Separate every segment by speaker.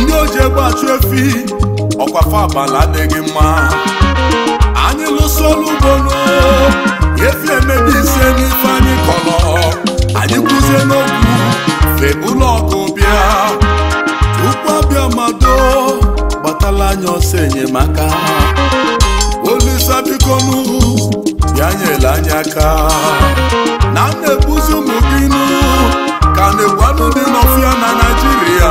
Speaker 1: ndị oji egbe achụ efi ọkwa fabala adịghị mma anyị lụso ọrụ ugbo efi emebi ise n'ife anyị kọrọ anyị kwụzie n'okwu fe ụlọ ọkụ bịa tupu abịa mado gbatala anyị ọsọ enyemaka olisa biko ya bịa nyere anyị aka na m na-ebuzi ụmụ ka na-egwanụ dị n'ọfịa na Naịjirịa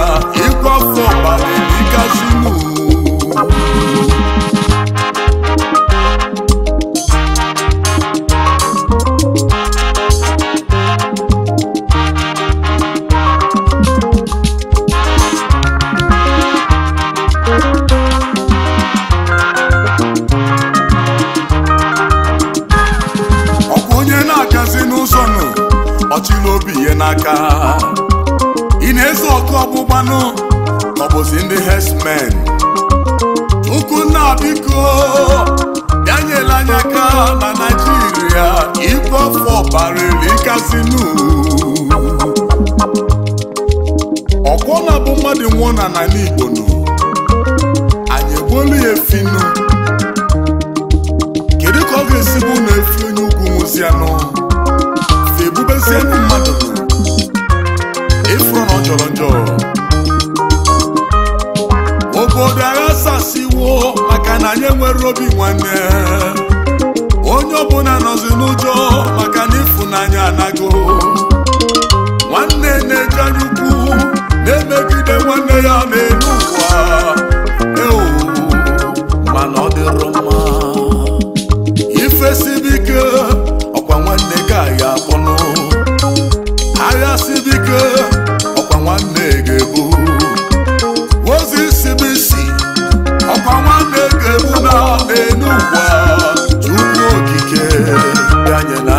Speaker 1: ọchịla obi ihe n'aka ị na ezu ọkụ ọgbụgbanụ ọbụzi ndị herdsmen ukwunna biko bịa nyere anyị aka na naijiria ibe ọfọ barịrị kasinu ọkwọna bụ mmadụ nwụọ na n'ala igbo nụ anyị egbuolu ya efinu kedu ka ọ ga esibu na efi onye ugwu nwụzianụ egbubezie ndị mmadụ ịfụrụ na ọ ọjọrọ njọ obodo agha sasiwo maka na anyị nwere obi nwanne onye ọbụla nọzi n'ụjọ maka na ịfụnanya anago nwanne na-eje anya ukwu na-emegide nwanne ya na-elu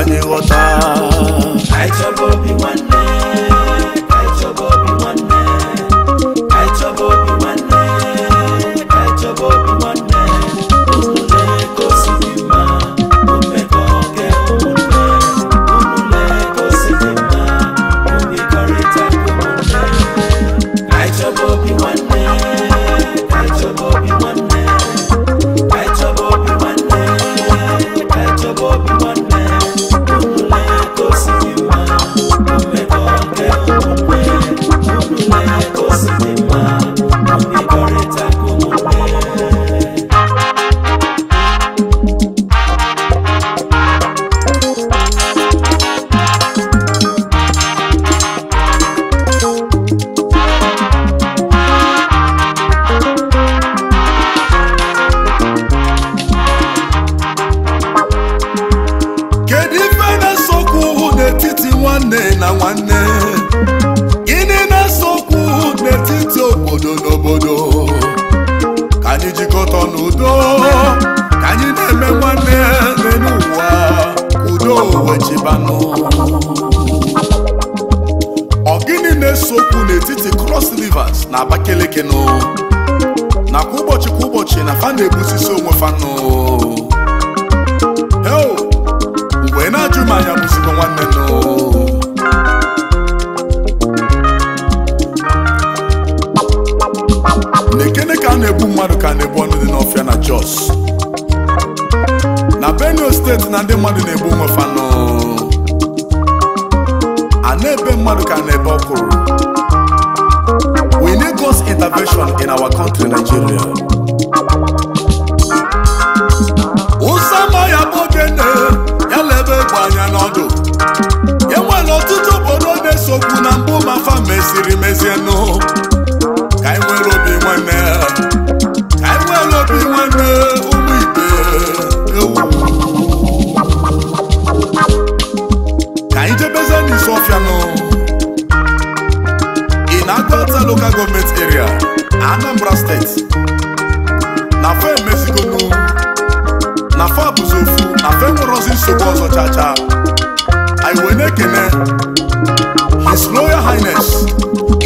Speaker 2: de gota.
Speaker 1: udo ka anyị na-eme nwanne ya n'ụwa udo wechibanụ ọgịnị na-esokwu n'etiti Cross Rivers na Abakeleke nụ nakwa ụbọchị kwa ụbọchị na fa na-egbusisi onwe fanụ mmadụ ka na-ebe ọkwụrụ we need God's intervention in our country Nigeria ụsa ma ya bụ ogene ya lebe egbe anya n'ọdụ anambra steeti na fe emezigonu na fe abụzi ofu na fe nwerozi nsogbu ọzọ chacha anyị wee na-ekene his royal highness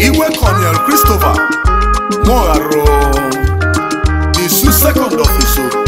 Speaker 1: iwe colonel christopher mogharo the second of iso oh.